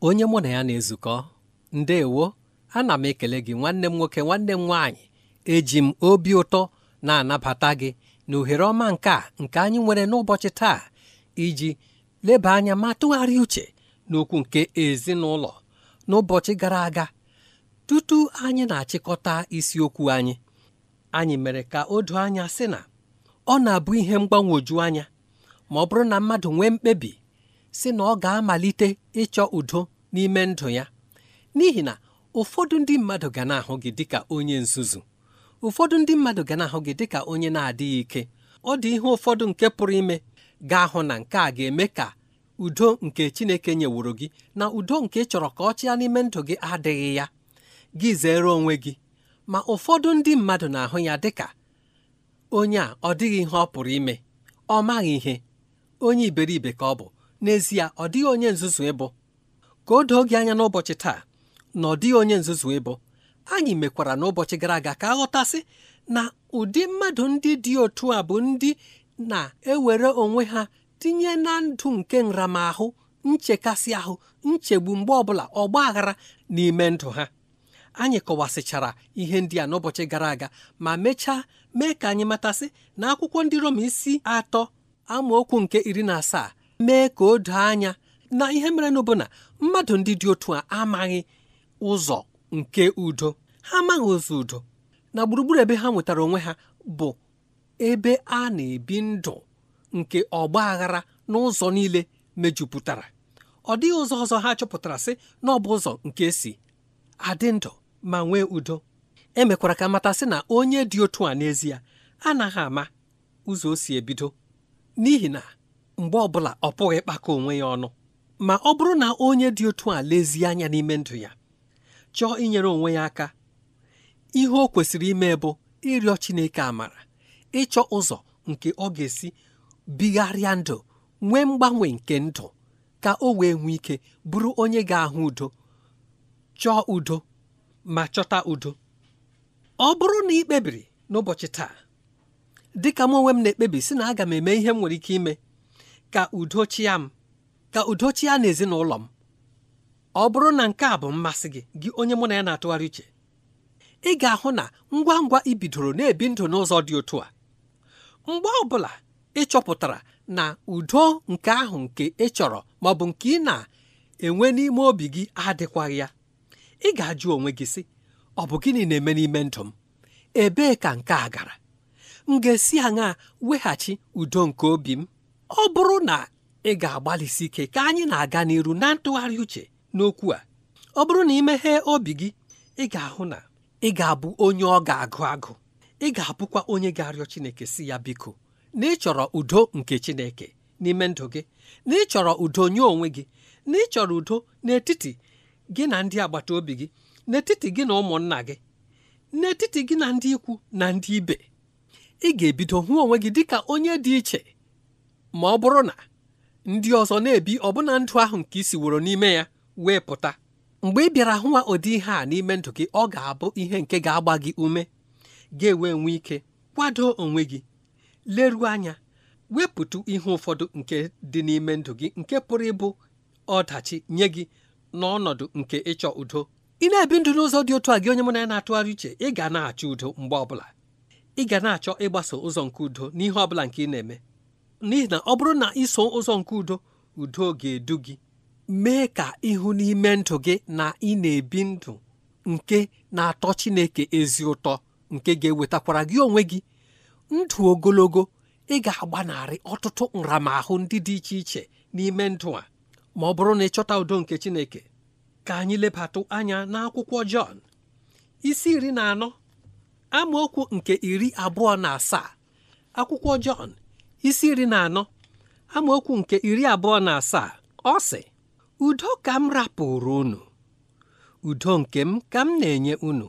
onye mụ na ya na-ezukọ ndewo ana m ekele gị nwanne m nwoke nwanne m nwaanyị eji m obi ụtọ na-anabata gị na ohere ọma nke a nke anyị nwere n'ụbọchị taa iji leba anya ma tụgharịa uche n'okwu nke ezinụlọ n'ụbọchị gara aga tutu anyị na-achịkọta isiokwu anyị anyị mere ka o anya sị na ọ na-abụ ihe mgbanwoju anya ma ọ bụrụ na mmadụ nwee mkpebi si na ọ ga-amalite ịchọ udo n'ime ndụ ya n'ihi na ụfọdụ ndị mmadụ ga na-ahụ gị dịka onye nzuzu ụfọdụ ndị mmadụ ga na-ahụ gị dịka onye na-adịghị ike ọ dị ihe ụfọdụ nke pụrụ ime ga-ahụ na nke a ga-eme ka udo nke Chineke nyeworo gị na udo nke chọrọ ka ọ chịa n'ime ndụ gị adịghị ya gị zere onwe gị ma ụfọdụ ndị mmadụ na-ahụ ya dịka onye a ọ dịghị ihe ọ pụrụ ime ọ maghị ihe onye iberibe ka ọ bụ n'ezie ọ dịghị onye nzuzu ịbụ ka o doo gị anya n'ụbọchị taa na ọ dịghị onye nzuzu ịbụ anyị mekwara n'ụbọchị gara aga ka aghọtasị na ụdị mmadụ ndị dị otu a bụ ndị na-ewere onwe ha tinye na ndụ nke nramahụ nchekasị ahụ nchegbu mgbe ọbụla ọgba aghara n'ime ndụ ha anyị kọwasịchara ihe ndị a n'ụbọchị gara aga ma mechaa mee ka anyị matasị na akwụkwọ ndị roma isi atọ amaokwu nke iri na asaa mee ka o doo anya na ihe mere na ọbụna mmadụ ndị dị otu a amaghị ụzọ nke udo ha amaghị ụzọ udo na gburugburu ebe ha nwetara onwe ha bụ ebe a na-ebi ndụ nke ọgba aghara n'ụzọ niile mejupụtara ọ dịghị ụzọ ọzọ ha chọpụtara sị na ọ bụ ụzọ nke si adị ndụ ma nwee udo emekwara ka mata sị na onye dị otu a n'ezie anaghị ama ụzọ o si ebido n'ihi na mgbe ọbụla ọ pụghị ịkpakọ onwe ya ọnụ ma ọ bụrụ na onye dị otu a lezie anya n'ime ndụ ya chọọ inyere onwe ya aka ihe o kwesịrị ime bụ ịrịọ Chineke amara ịchọ ụzọ nke ọ ga-esi bigharịa ndụ nwee mgbanwe nke ndụ ka o wee nwee ike bụrụ onye ga-ahụ udo chọọ udo ma chọta udo ọ bụrụ na ị kpebiri n'ụbọchị taa dịka m onwe m na-ekpebi si na aga m eme ihe m nwere ike ime ka udo chịa m ka udo chịa na ezinụlọ m ọ bụrụ na nke a bụ mmasị gị gị onye mụ na ya na-atụgharị uche ị ga-ahụ na ngwa ngwa ị bidoro na-ebi ndụ n'ụzọ dị otu a mgbe ọ bụla ị chọpụtara na udo nke ahụ nke ị chọrọ ma ọ bụ nke ị na-enwe n'ime obi gị adịkwaghị ya ị ga-ajụ onwe gị sị ọ bụ gịnị na-eme n'ime ndụ m ebee ka nke a gara m ga-esi aṅa weghachi udo nke obi m ọ bụrụ na ị ga-agbalịsi ike ka anyị na-aga n'iru na ntụgharị uche n'okwu a ọ bụrụ na ị meghee obi gị ị ga-ahụ na ị ga-abụ onye ọ ga-agụ agụ ị ga-abụkwa onye ga-arịọ Chineke si ya biko na ịchọrọ udo nke Chineke n'ime ndụ gị na ịchọrọ udo nye onwe gị na ịchọrọ udo n'etiti gị na ndị agbata obi gị n'etiti gị na ụmụnna gị n'etiti gị na ndị ikwu na ndị ibe ị ga-ebido hụ onwe gị dịka onye dị iche ma ọ bụrụ na ndị ọzọ na-ebi ọbụna ndụ ahụ nke isi woro n'ime ya wee pụta mgbe ị bịara hụwa ụdị ihe a n'ime ndụ gị ọ ga-abụ ihe nke ga-agba gị ume ga enwe nwee ike kwado onwe gị leruo anya wepụtụ ihe ụfọdụ nke dị n'ime ndụ gị nke pụrụ ịbụ ọdachi nye gị n'ọnọdụ nke ịchọ udo ị na-ebi ndụ n'ụzọ dị otu a gị onye mụ na ya na-atụgharị uche ị ga na-achọ udo mgbe ọbụla ị ga na-achọ ịgbaso ụzọ nke udo n'ihe ọbụla nke ị na-eme n'ihi na ọ bụrụ na iso ụzọ nke udo udo ga-edu gị mee ka ịhụ n'ime ndụ gị na ị na-ebi ndụ nke na-atọ Chineke ezi ụtọ nke ga-ewetakwara gị onwe gị ndụ ogologo ị ga-agbanarị ọtụtụ nramahụ ndị dị iche iche n'ime ndụ a ma ọ bụrụ na ịchọta udo nke Chineke ka anyị lebatụ anya n'akwụkwọ Jọn isi iri na anọ amaokwu nke iri abụọ na asaa akwụkwọ Jọn isi iri na anọ amaokwu nke iri abụọ na asaa ọ sị udo ka m rapụrụ unu udo nke m ka m na-enye unu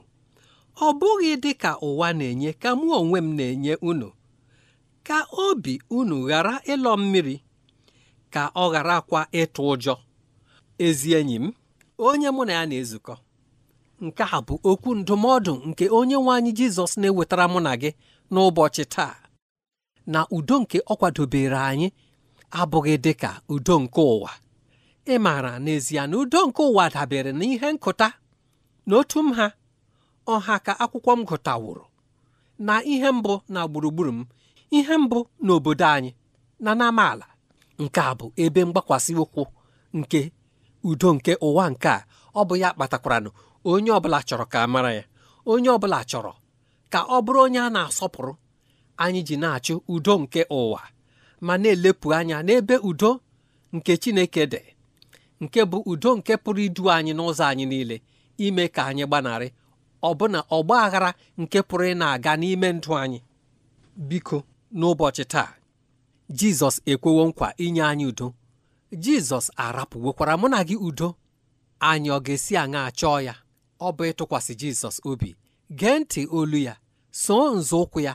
ọ bụghị dị ka ụwa na-enye ka mụ onwe m na-enye unu ka obi unu ghara ịlọ mmiri ka ọ ghara kwa ịtụ ụjọ ezi enyi m onye mụ na ya na-ezukọ nke a bụ okwu ndụmọdụ nke onye nwe anyị Jizọs na-ewetara mụ na gị n'ụbọchị taa na udo nke ọ kwadobere anyị abụghị dị ka udo nke ụwa ị maara n'ezie na udo nke ụwa dabere na ihe nkụta na otu m ha ọha ka akwụkwọ m gụtawụrụ na ihe mbụ na gburugburu m ihe mbụ n'obodo anyị na n'amaala nke a bụ ebe mgbakwasị ụkwụ nke udo nke ụwa nke a ọ bụ ya kpatakwaranụ onye ọbụla chọrọ ka mara ya onye ọbụla chọrọ ka ọ bụrụ onye a na-asọpụrụ anyị ji na-achụ udo nke ụwa ma na-elepụ anya n'ebe udo nke Chineke dị nke bụ udo nke pụrụ idu anyị n'ụzọ anyị niile ime ka anyị gbanarị ọbụna ọgba aghara nke pụrụ ị na-aga n'ime ndụ anyị biko n'ụbọchị taa Jizọs ekwewo nkwa inye anyị udo Jizọs arapụwekwara mụ na gị udo anyị ọ ga-esi aṅa chọọ ya ọ bụ ịtụkwasị Jizọs obi gee ntị olu ya soo nzọụkwụ ya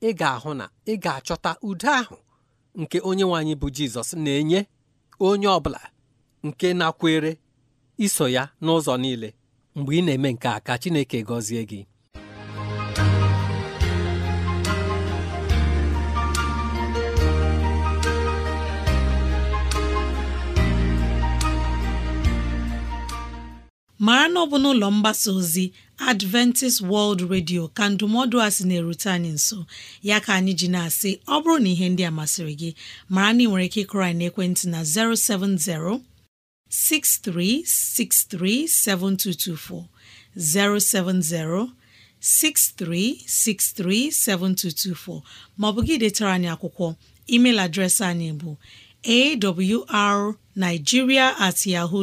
ị ga-ahụ na ị ga-achọta udo ahụ nke onye nwanyị bụ Jizọs na-enye onye ọ bụla nke nakwere iso ya n'ụzọ niile mgbe ị na-eme nke a ka Chineke gọzie gị mara na ọ bụ n'ụlọ mgbasa ozi Adventist World Radio ka ndụmọdụ a sị na-erute anyị nso ya ka anyị ji na-asị ọ bụrụ na ihe ndị a masịrị gị mara na ị nwere ike ịkụrọ anyị n'ekwentị na 070 6363 7224, 070 6363 7224 maọbụ gị detara anyị akwụkwọ email adreesị anyị bụ awrnigeria at yahoo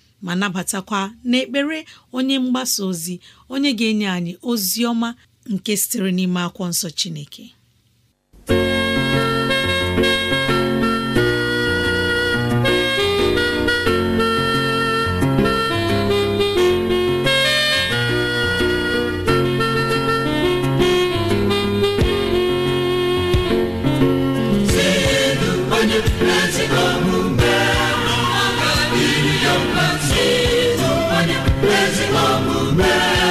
ma nabatakwa n'ekpere onye mgbasa ozi onye ga-enye anyị ozi ọma nke sitere n'ime akwụkwọ nsọ Chineke omume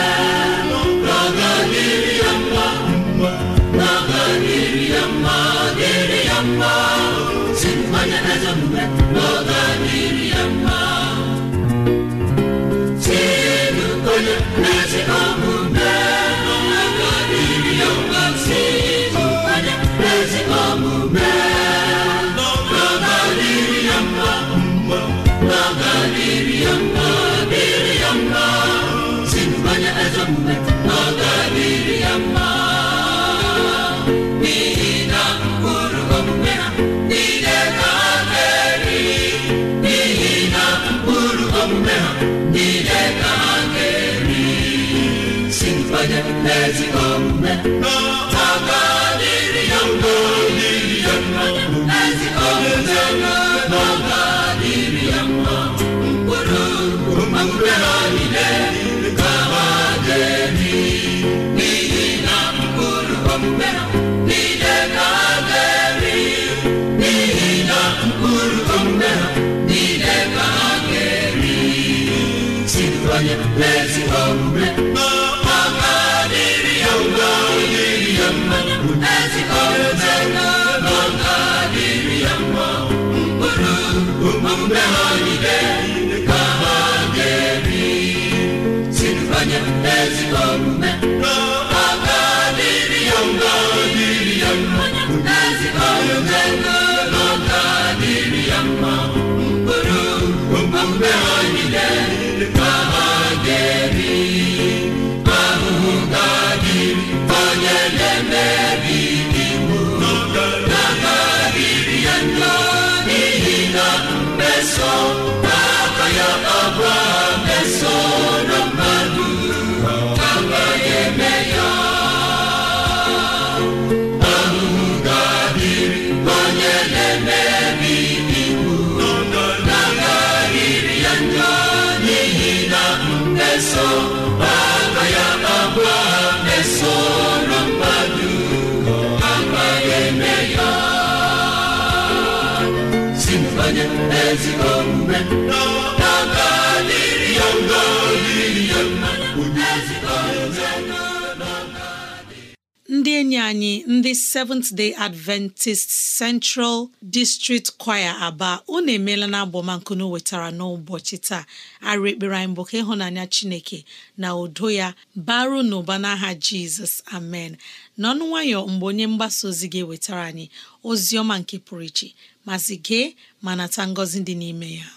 mmezi omume n'ọha ga-adịrị ya mma Island. enyi anyị ndị Seventh Day Adventist Central District Choir Aba unu emeela na agbọmankunu wetara n'ụbọchị taa arụ ekpere anyị bụ ka ịhụnanya Chineke na udo ya baru n'ụba n'aha Jizọs amen n'ọnụ nwayọ mgbe onye mgbasa ozi gị wetara anyị ozi ọma nke pụrụ iche masị gee ma nata ngọzi dị n'ime ya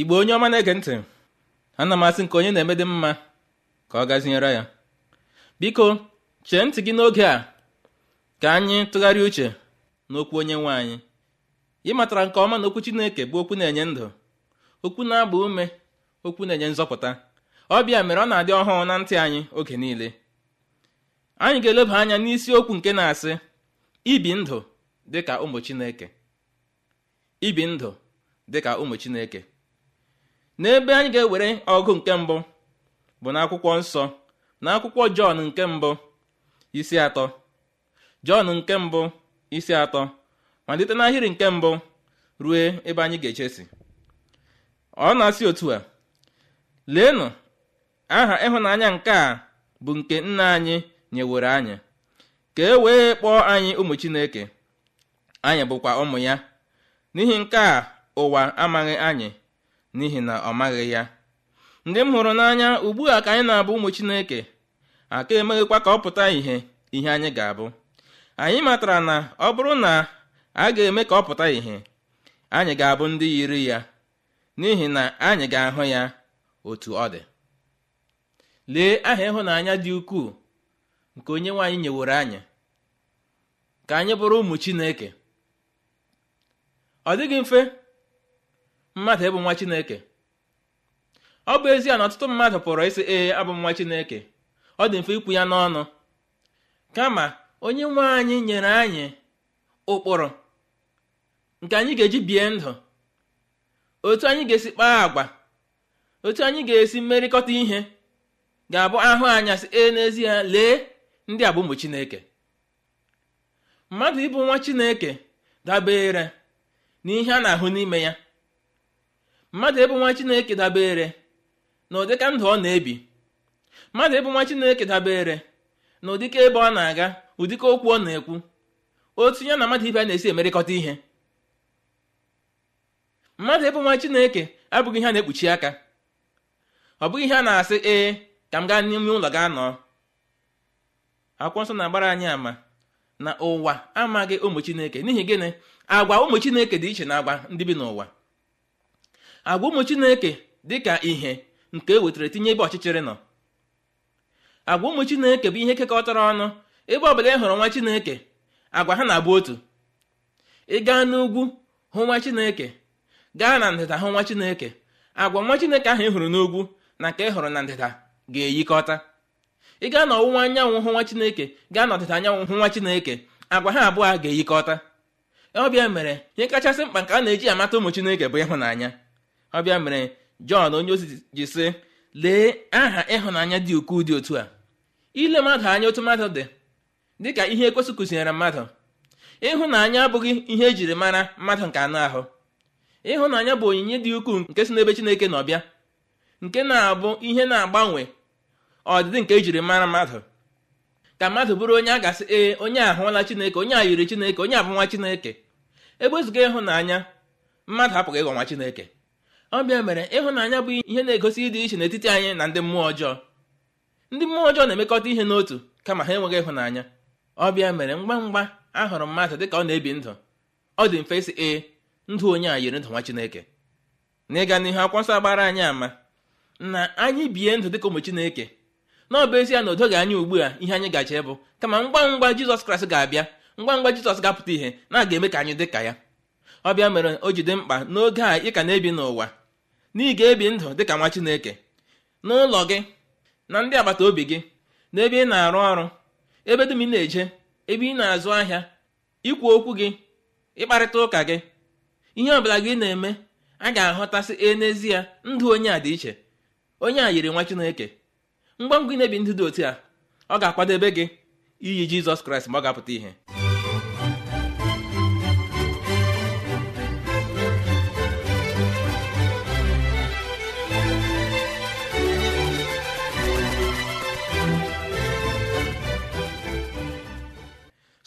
igbo onye ọma na-ege ntị ana m asị nke onye na-eme dị mma ka ọ gazinyere ya biko chee ntị gị n'oge a ka anyị tụgharịa uche n'okwu onye nwe anyị ị matara nke ọma na okwu Chineke bụ okwu na-enye ndụ okwu na-agba ume okwu na-enye nzọpụta ọbịa mere ọ na-adị ọhụụ na ntị anyị oge niile anyị ga-eleba anya n'isiokwu nke na-asị ibi ndụ dịka ụmụ Chineke ibi ndụ dịka ụmụ Chineke n'ebe anyị ga-ewere ọgụ nke mbụ bụ n'akwụkwọ nsọ na akwụkwọ jọn nke mbụ isi atọ jọn nke mbụ isi atọ ma malite n'ahịrị nke mbụ ruo ebe anyị ga-echesi ọ na-asị otu a leenụ aha ịhụnanya nke a bụ nke nna anyị nyewere anyị ka e wee kpọọ anyị ụmụ chineke anyị bụkwa ụmụ ya n'ihi nke a ụwa amaghị anyị n'ihi na ọ maghị ya ndị m hụrụ n'anya ugbu a ka anyị na-abụ ụmụ chineke aka emeghịkwa ka ọ pụta ìhè ihe anyị ga-abụ anyị matara na ọ bụrụ na a ga-eme ka ọ pụta ìhè anyị ga-abụ ndị yiri ya n'ihi na anyị ga-ahụ ya otu ọ dị lee aha ịhụnanya dị ukwuu nke onye nwaanyị nyeworo anyị ka anyị bụrụ ụmụ chineke ọ dịghị mfe mmadụ ịbụ nwa chineke ọ bụ ezie na ọtụtụ mmadụ pụrụ ịsị ee abụ nwa chineke ọ dị mfe ikwu ya n'ọnụ kama onye nwe anyị nyere anyị ụkpụrụ nke anyị ga-eji bie ndụ otu anyị ga-esi kpaa agwa otu anyị ga-esi mmerịkọta ihe ga-abụ ahụ anya si ee n'ezie lee ndị a bụ chineke mmadụ ịbụ nwa chineke dabere na ihe a na-ahụ n'ime ya mmadụ ebe nwa chineke dabere na ụdịka ndụ ọ na-ebi mmadụ ebe nwa chineke dabere na ụdịka ebe ọ na-aga ụdịka okwu ọ na-ekwu otu ya na mmadụ ibe a na-esi emerịkọta ihe mmadụ ebe nwa chineke abụghị ihe a na-ekpuchi aka ọ bụghị ihe a na-asị ee ka m gaa n'ime ụlọ gaa nọọ akwụkwọ nsọ na-agbara anyị ama na ụwa amaghị ụmụ chineke n'ihi gịnị agwa ụmụ chineke dị iche na agwa ndị bi n'ụwa agwa ụmụ chineke dị ka ihe nke e wetara tinye ebe ọchịchịrị nọ agwa ụmụ chineke bụ ihe kekọtara ọnụ ebe ọbụla ị e hụrụ nwa chineke agwa ha na-abụ otu ị gaa n'ugwu hụ nwa chineke gaa na ndịda hụ nwa chineke agwa nwa chineke ahụ ị hụrụ n'ugwu na nke ị hụrụ na ndịda ga-eyikọta ị gaa n'ọwụwa anyanwụ hụ nwa chineke gaa n'ọdịda anyanwụ hụ nwa chineke agwa ha abụọ a ga-eyikọta ọbịa mere ihe kachasị mkpa nke a na-eji amata ụmụ chineke bụ ịhụnanya ọ mere jọn onye ozi ji sị lee aha ịhụnanya dị ukwuu dị otu a ile mmadụ anya otu mmadụ dị dịka ihe ekwesị kụzinyere mmadụ ịhụnanya abụghị ihe ejiri mara mmadụ nke anụ ahụ ịhụnanya bụ onyinye dị ukwuu nke si n'ebe chineke na ọbịa nke na-abụ ihe na-agbanwe ọdịdị nke ejiri mara mmadụ ka mmadụ bụrụ onye a gasị ee onye ahụla chineke onye a yiri chineke onye abụ nwa chineke ebe ezuga ịhụnanya mmadụ apụghị ịghọ nwa chineke ọbịa mere ịhụnanya bụ ihe na-egosi ịdị iche n'etiti anyị na ndị mmụọ ọjọọ ndị mmụọ ọjọọ na-emekọta ihe n'otu kama ha enweghị ịhụnanya ọbịa mere ngwa ngwa hụrụ mmadụ dị ka ọ na-ebi ndụ ọ dị mfe si ee ndụ onye a yiri ndụ nwa Chineke n'ịga n'ihu akwọ nsọ gbara anyị ama na anyị bie ndụ dịka ụmụ Chineke na ọ bụ ezie na o anyị anya ugbu a ihe anyị gaje bụ kama ngwa ngwa Jizọs Kraịst ga-abịa ngwa ngwa Jizọs ga-apụta ihe na aga eme ka anyị dị ka ya ọbịa mere o jide mkpa n'oge a ị ka na-ebi n'ụwa na ebi ndụ dịka nwa Chineke n'ụlọ gị na ndị agbata obi gị na ebe ị na-arụ ọrụ ebe dum ị na-eje ebe ị na-azụ ahịa ikwu okwu gị ịkparịta ụka gị ihe ọbụla gị na-eme a ga-ahọtasị e n'ezie ndụ onye a dị iche onye a yiri nwa Chineke mgbe ngwa ị na-ebi ndụ dị otu a ọ ga-akwadebe gị iyi Jizọs Kraịst ma ọ ga-apụta ihe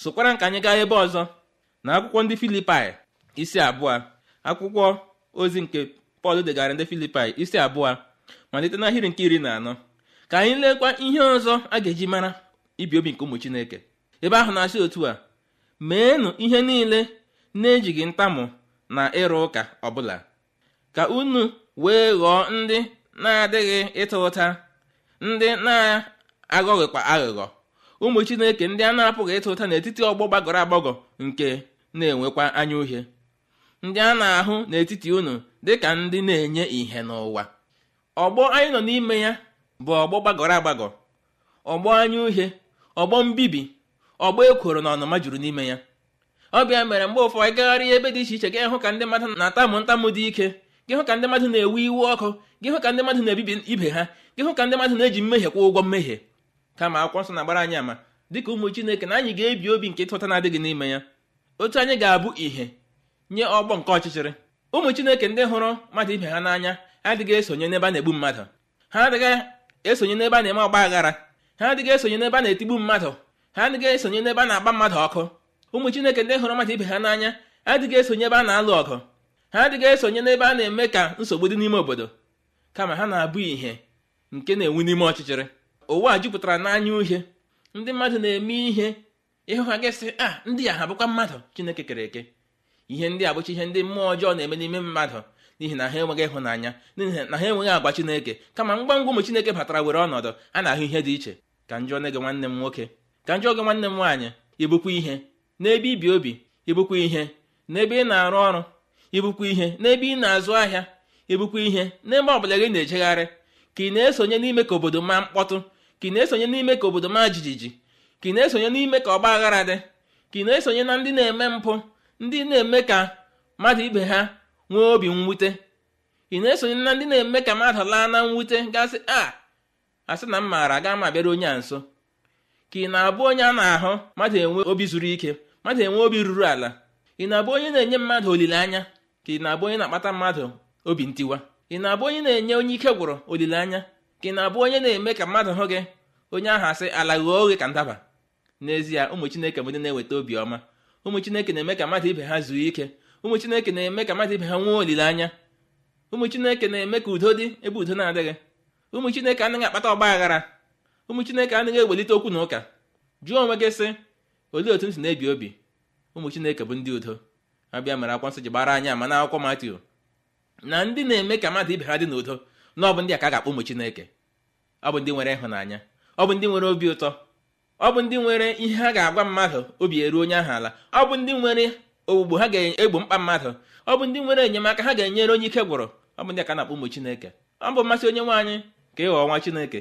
sokwara ka anyị gaa ebe ọzọ na akwụkwọ ndị filipai isi abụọ akwụkwọ ozi nke pọl degara ndị filipai isi abụọ malite n'ahịrị nke iri na anọ ka anyị lekwa ihe ọzọ a ga-eji mara ibi obi nke ụmụ chineke ebe ahụ na-asị otu a meenụ ihe niile na-ejighị ntamụ na ịrụ ụka ọbụla ka unu wee ghọọ ndị na-adịghị ịta ụta ndị na-aghọghịkwa aghụghọ ụmụ chineke ndị a na-apụghị ịta ụta n'etiti ọgbọ gbagọrọ agbagọ nke na-enwekwa anya uhie ndị a na-ahụ n'etiti unu dịka ndị na-enye ìhè n'ụwa ọgbọ anyị nọ n'ime ya bụ ọgbọ gbagọrọ agbagọ ọgbọ anya uhie ọgbọ mbibi ọgbọ ekworo na ọnụma juru n'ime ya ọbịa mere mgbe ụfọdụ ịgagharị gagharịa ebe dị iche iche gị hụ ka ndị mmadụ na-atamụ ntamụ dị ike gị hụ ka ndị mmadụ na-ewe iwe ọkụ gị hụ ka ndị mmadụ na-ebibi ibe ha gị hụ ka ndị mmadụ na-eji mmehie kwa ụgwọ mmehie kama akwụkwọ nsọ na-agbara anyị ama dịka ụmụ chineke na anyị ga-ebi obi nke ịtụta na-adịghị n'ime ya otu anyị ga-abụ ìhè nye ọgbọ nke ọchịchịrị ụmụ chineke ndị hụrụ mmadụ ibe ha n'anya adịghị esonye n'ebe a na-egbu mmadụ ha adịghị esonye n'ebe a na-eme ọgba aghara ha adịghị esonye n'ebe a na-etigbu mmadụ ha adịghị esonye n'ebe a na-agba mmadụ ọkụ ụmụ chineke ndị hụrụ mmadụ ibe ha n'anya adịghị esonye ebe a na-alụ ọgụ ha adịghị esonye n'ebe a na-eme ka nsogbu dị n'ime obodo kama ha na-abụ ìhè nke na-enwu n'ime ọchịchịrị ụwa jupụtara n'anya uhie ndị mmadụ na-eme ihe ịhụ ha gasị a ah, ndị a ha bụkwa mmadụ chineke kere eke ihe ndị a ihe ndị mmụọ ọjọọ na-eme n'ime mmadụ n'ihi na ha enweghị ịhụnanya n'ihi na ha enweghị agwa chineke kama ngwa ngwa ụmụ chineke batara were ọnọdụ a na-ahụ ihe dị iche ka njọ nne nwanne m nwoke ka njọ gị nwanne m nwaanyị ibukwa ihe n'ebe ibi obi ibukwa ihe n'ebe ị na-arụ ọrụ ibukwa ihe n'ebe ị na-azụ ahịa ibukwa ihe n'ebe ọ bụla gị na-ejegharị ka ị na-esonye n'ime ka obodo maa mkpọtụ ka ị na-esonye n'ime ka obodo maa jijiji ka ị na-esonye n'ime ka ọgba aghara dị ka ị na-esonye na ndị na-eme mpụ ndị na-eme ka mmadụ ibe ha nwee obi mwute ị na-esonye na ndị na-eme ka mmadụ laa na mwute gasị ah, a asị na m maara gaa ma abịara onye a nso ka ị na-abụ onye a na-ahụ mmadụ enwe obi zuru ike mmadụ enwe obi ruru ala ị na-abụ onye na-enye mmadụ olileanya ka ị na-abụ onye na-akpata mmadụ obi ntiwa ị na-abụ onye na-enye onye ike gwụrụ olileanya gị na-abụ onye na-eme ka mmadụ hụ gị onye ahụ asị ala ghọọ oghe ka ndaba n'ezie ụmụ chineke bụ ndị na-eweta obiọma ụmụ chineke na-eme ka mmadụ ibe ha zuo ike ụmụ chineke na-eme ka mmadụ ibe ha nwee olileanya ụmụ chineke na-eme ka udo dị ebe udo na-adịghị ụmụ chineke anaghị akpata ọgba aghara ụmụ chineke anaghị ewelite okwu na ụka jụọ onwe gị sị olee otu ntị na-ebi obi ụmụ chineke bụ ndị udo abịa mere akwụkwọ nsọ ji gbara ma na n'akwụkwọ matio na ndị na-eme ka mmadụ ibe ha dị n'udo na ọ bụ ndị a ka a ga-akpọ ụmụ chineke ọ bụ ndị nwere ịhụnanya ọ bụ ndị nwere obi ụtọ ọ bụ ndị nwere ihe ha ga-agwa mmadụ obi eru onye ahụ ala ọ bụ ndị nwere ogbugbo ha ga-egbo mkpa mmadụ ọ bụ ndị nwere enyemaka ha ga-enyere onye ike gwụrụ ọ bụ ndị ka na-akpọ ụmụ chineke ọ bụ mmasị onye nwaanyị ka ịghọ ọnwa chineke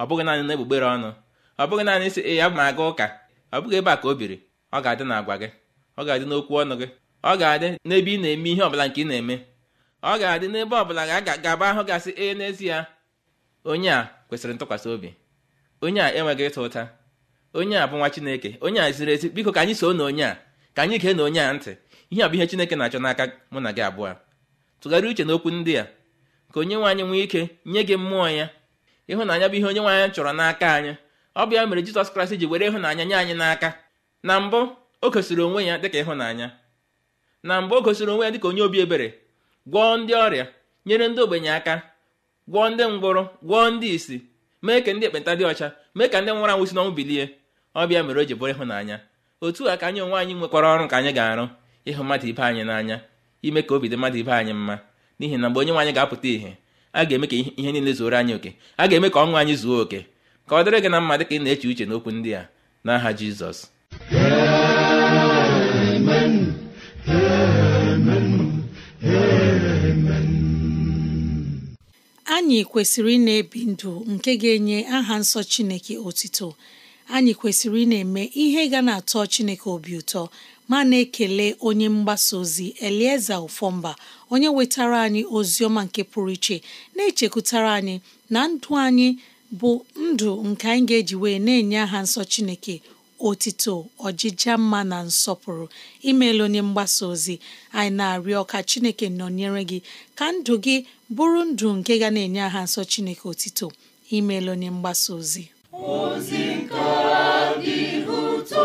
ọ bụghị naanị na egbugbere ọnụ ọ bụghị naanị sị ee a ma aga ụka ọ bụghị ebe a ka o biri ọ ga-adị na gị ọ ga-adị n'okwu ọnụ gị ọ ga-adị n'ebe ị na-eme ihe ọbụla nke ị na-eme ọ ga-adị n'ebe ọ bụla ga-agaba ahụ gasị ee n'ezie onye a kwesịrị ntụkwasị obi onye a enweghị ịta ụta onye a bụ nwa chineke onye a ziri ezi biko ka anyị soo na onye a ka anyị gee na onye a ntị ihe a bụ ihe chineke na-achọ n'aka mụ na gị abụọ tụgharị uche n'okwu ndị a ka onye nwe anyị nwee ike nye gị mmụọ ya ịhụnanya bụ ihe onye nwe anyị chọrọ n'aka anyị ọ bụ ya mere jizọs kraịst ji were ịhụnanya nye anyị n'aka na mbụ o gosiri onwe ya dịka ịhụnanya na mbụ o gosiri onwe ya dịka onye obi ebere gwọọ ndị ọrịa nyere ndị ogbenye aka gwọọ ndị ngwụrụ gwọọ ndị isi mee ka ndị ekpenta dị ọcha mee ka ndị nwụrụ anwụ si n'ọnwụ bilie ọbịa mere o ji bụrụ ịhụnanya otu a ka anyị onwe anyị nwekwara ọrụ ka anyị ga-arụ ịhụ mmadụ ibe anyị n'anya ime ka obi dị mmadụ ibe anyị mma n'ihi na mgbe onye nwe anyị ga-apụta ihe a ga-eme ka ihe niile zuoro anyị oke a ga-eme ka ọnwụ anyị zuo oke ka ọ dịrị gị na mma dị ka ị na-eche uche n'okwu ndị a n'aha Jizọs anyị kwesịrị ị na-ebi ndụ nke ga-enye aha nsọ Chineke otito anyị kwesịrị ị na-eme ihe ga na-atọ Chineke obi ụtọ ma na-ekele onye mgbasa ozi Elieza Ufomba onye wetara anyị ozi ọma nke pụrụ iche na-echekwutara anyị na ndụ anyị bụ ndụ nke anyị ga-eji wee na-enye aha nsọ Chineke otito ọjịja mma na nsọpụrụ imeela onye mgbasa ozi anyị na-arịọ ka chineke nọnyere gị ka ndụ gị bụrụ ndụ nke ga na-enye aha nsọ chineke otito imeela onye mgbasa ozi ozi nke dị ụtọ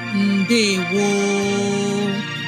wo